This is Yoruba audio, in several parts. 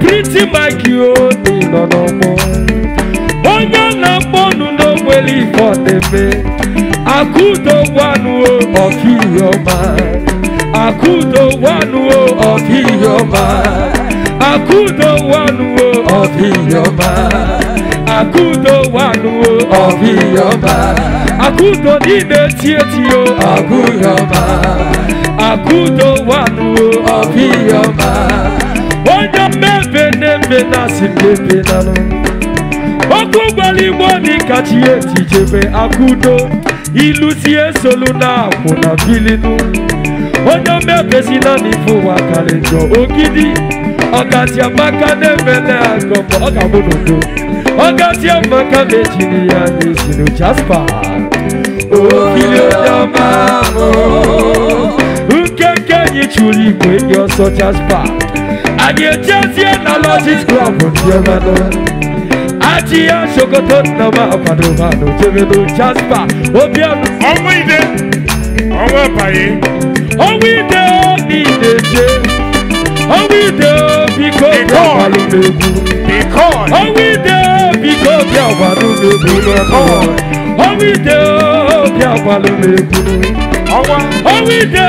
pretty Maggie Odi oh, nọ n'ọgbọ onye a na-akpọ nụ n'ogweli ifọdebe akụdogwanuo oh, ọkaiheọma akụdogwanuo oh, ọkaiheọma akụdogwanuo ọkaiheọma akụdogwanuo ọkaiheọma akụdo niile tietio ọgụghịọma akụdogwanuo ọkaiheọma onye jebe na si jebe na no eti jebe akụdo ilu si esolu na akwụ na bilinu onye omebesi na n'ife ụwa karị njọ ogidi ọgazi amaka na-emele agọmọ ọ ga-abụ n'udo ọgazi amaka na-ejiri ya n'ezinu jaspa ogidi onye ọma ahụ nkeke anyị chụrụ igwe dị ọsọ jaspa I dey just hear na logic club Diomano Aji ya shokoto na ma pado mano Jemeno Jasper Obiano Ọmọ ìdè ọmọ ẹ̀bàyè. Ọmọ ìdè ó ní ìdè jẹ́. Ọmọ ìdè ó bí kò bí àwọn alùpùpù. Ọmọ ìdè ó bí kò bí àwọn alùpùpù. Ọmọ ìdè ó bí àwọn alùpùpù. Ọmọ ìdè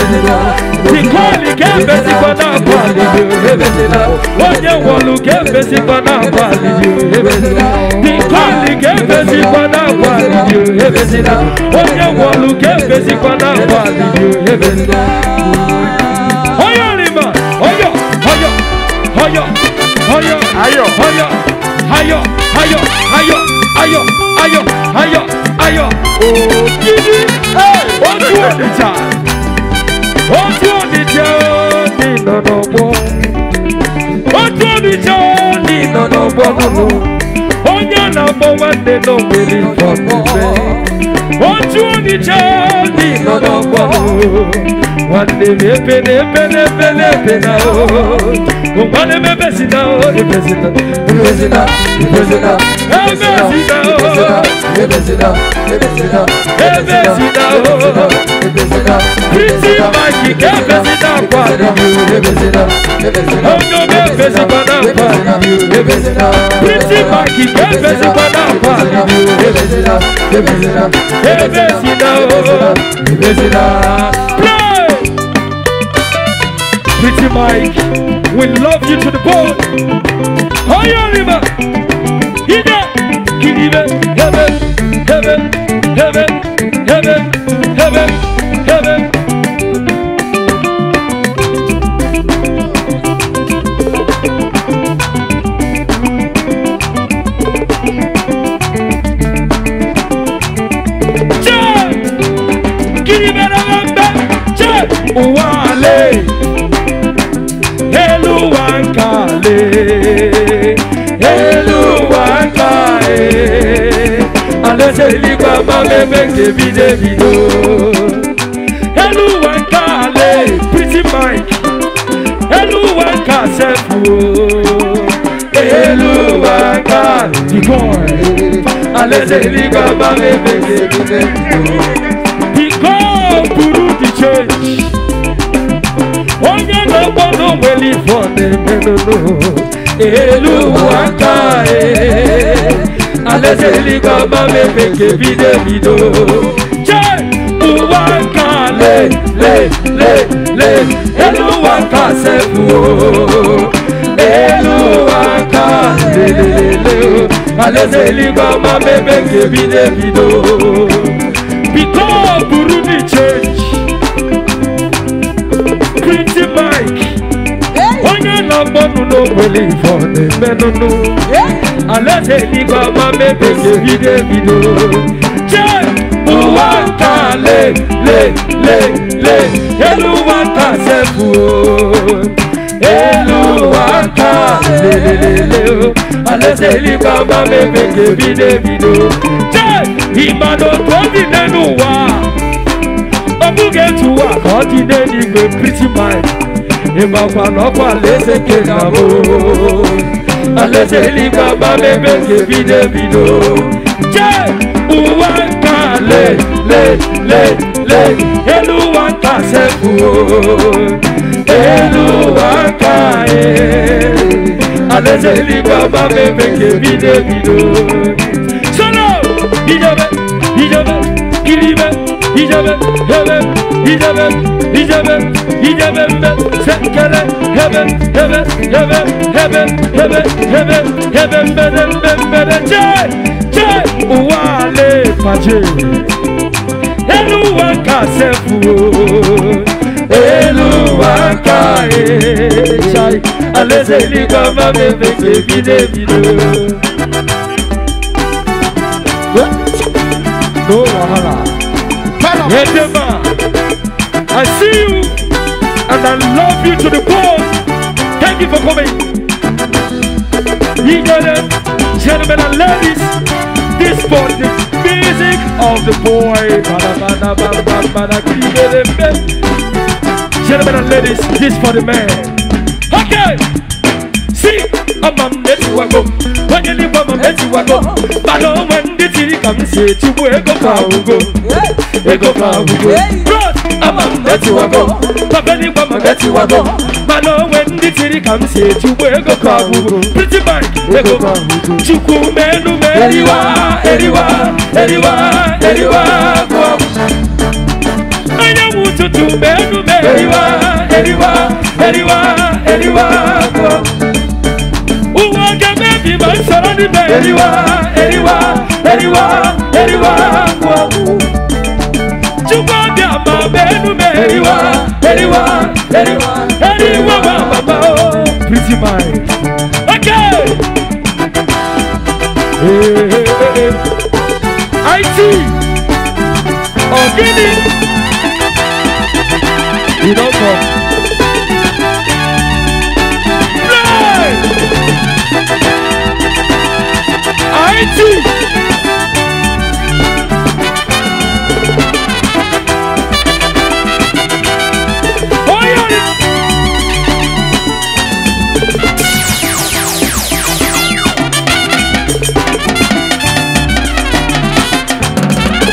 Nikoli kembe si pana pali Wonye wolu kembe si pana pali Nikoli kembe si pana pali Wonye wolu kembe si pana pali Oyo rima Oyo Oyo Oyo Oyo Ayo Oyo Ayo Ayo Ayo Ayo Ayo Ayo Ayo Oh, Gidi! Hey! What's your name? ojú omi jẹ́ ní ìnànà gbọ́ ojú omi jẹ́ ní ìnànà gbọ́ nínú na-akpọ nwanne nọ nwere ìfọ̀nùfẹ́ ojú omi jẹ́ ní ìnànà gbọ́ nínú. wandemepene pene pene pena Pretty Mike, we love you to the bone. Higher river, Ida, Kiribe, heaven, heaven, heaven, heaven, heaven. eluwaka aleseli gbagba meme nkebi debido eluwaka ale pretty mike eluwaka sefu oh. eluwaka the boy aleseli gbagba meme nkebi beli for the melulu elu waka e aleseli baba mepeke bide bido Che, uwaka le le le le elu waka sefu o elu waka le le le gaba baba mepeke bide bido because Burundi change. lọgbọnu no wele for the menunu alẹsẹ ni gbọmọ mebeke videvido ṣe buwa ta le le le le eluwa ta sẹfu o eluwa ta le le le le o alẹsẹ ni gbọmọ mebeke videvido ṣe ìbàdàn tó ti dẹnu wa obuge tuwa kọ́ ti dé ní gbé pretty mind nimafanɔkɔ ale se ke nabo ale se li baba bebe ke bidebido je uwa ka le le le le eluwa ka se ku o eluwa ka ye ale se li baba bebe ke bidebido solo bidobe bidobe kiribe bidobe bebe gidemem gidemem gidemem ben sen kere hemen hemen hemen hemen hemen hemen hemen benen ben benen çe çe uwale pace eluwa kasefu eluwa kae çay alezeli kama bebeke bide bide No wahala. Hedema. I see you and I love you to the core. Thank you for coming. You gentlemen and ladies, this for the music of the boy. Gentlemen and ladies, this for the man. Okay, see, I'm a mess you go. When you leave, I'm a mess you go. But no one did see come say, you go go go go go go go. ukumenumeriwa uwagemebimasoranimeriwa mama benu meriwa eriwa eriwa eriwa mama ba oh. pretty mind okay hey, hey, hey, hey. IT Ogini oh, you don't come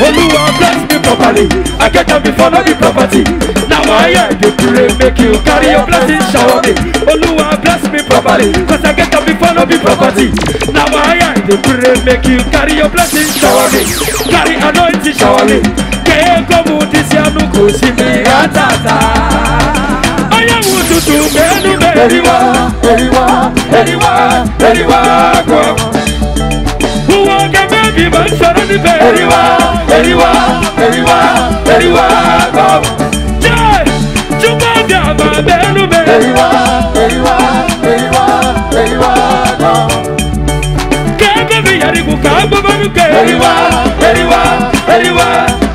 Olúwa bless me properly. I get up before no be property. Now I hear you pray, make you carry your blessing shower me. Olúwa bless me properly. Cause I get up before no be property. Now I hear you pray, make you carry your blessing shower me. Carry anointing shower me. Kéèkó mu ti sí àánú kò sí mi rátàtà. Ọyẹ́wò tuntun mẹ́nu mẹ́rin wá, mẹ́rin wá, mẹ́rin wá, mẹ́rin wá kọ́ tó ń ṣeré níbẹ̀. Èríwá èríwá èríwá èríwá kọ́. Júbọ̀ bí àbá bẹ́ẹ̀nu bẹ̀. Èríwá èríwá èríwá èríwá kọ́. Kẹ́kẹ́ mi yẹri kù ká gbọ́bọ́ mi kẹ́. Èríwá èríwá èríwá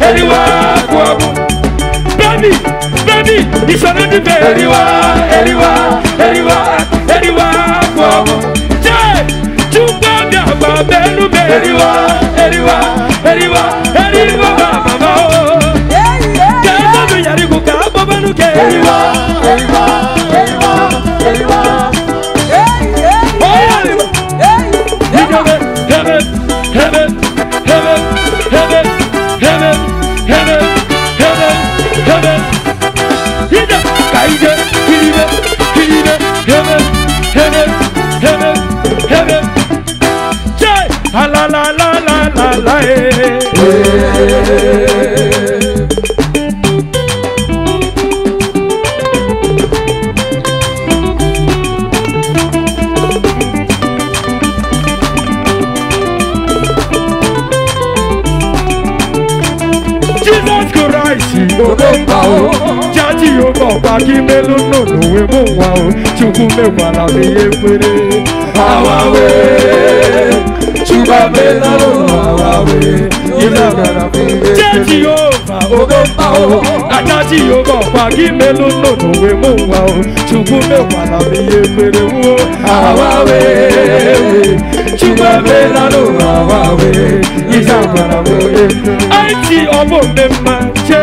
èríwá kọ́. Bẹ́ẹ̀ni bẹ́ẹ̀ni ìṣòro níbẹ̀. Èríwá èríwá èríwá èríwá kọ́. Jẹ́ Júbọ̀ bí àbá bẹ́ẹ̀nu bẹ̀. Èríwá. Hey, hey, hey, hey, hey, akíbélú nùnúwé mú wa o chukwu mekwala ihe kwere awawe chukwabelalo awawe ilebara mgbe jeji ova obemba o aka jehova ọkwa gị melụ nụnụwe mụ nwa o chukwu mekwala m ihe kwere wuo awawe chukwabelalo awawe ilebara mgbe aiti ọbụ mmemme chee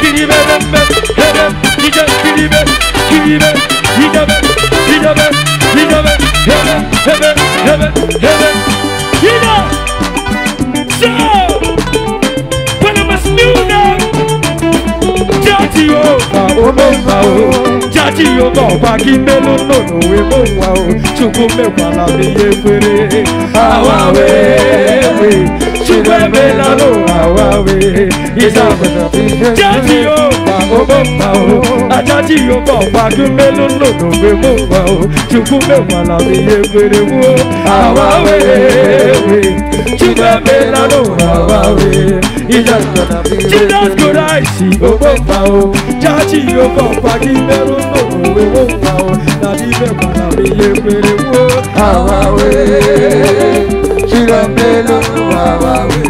Kiribe dembe Hedem Nice kiribe Kiribe Hidebe Hidebe Hidebe So When I'm a snoona Jati o Ka o mo ma o Jati wa o Chukwu me wa la kwere Awa we we chibwebe lalo awawe ìsàgbẹ̀dàbí jẹ́jì o pa owó pa o ajájì o bọ̀ pàdúmé lólòdò pé mo pa o chukwu mẹ́wàá làbí egbèrè wú o awawe chibwebe lalo awawe ìsàgbẹ̀dàbí jesus christ owó pa o jájì o bọ̀ pàdúmé lólòdò pé mo pa o làbí mẹ́wàá làbí egbèrè wú o awawe. Chira melo wawa we.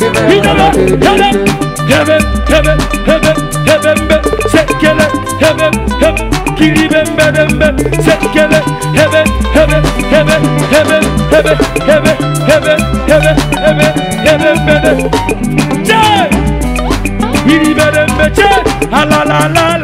Give it, give it, give it, give it, give it, give it, sekele, hebe, hep, kiri bembe bembe, sekele, hebe, hebe, hebe, hebe, hebe, hebe, hebe, hebe, hebe, hebe, bebe. Che! Kiri bembe che! Ha la la la la.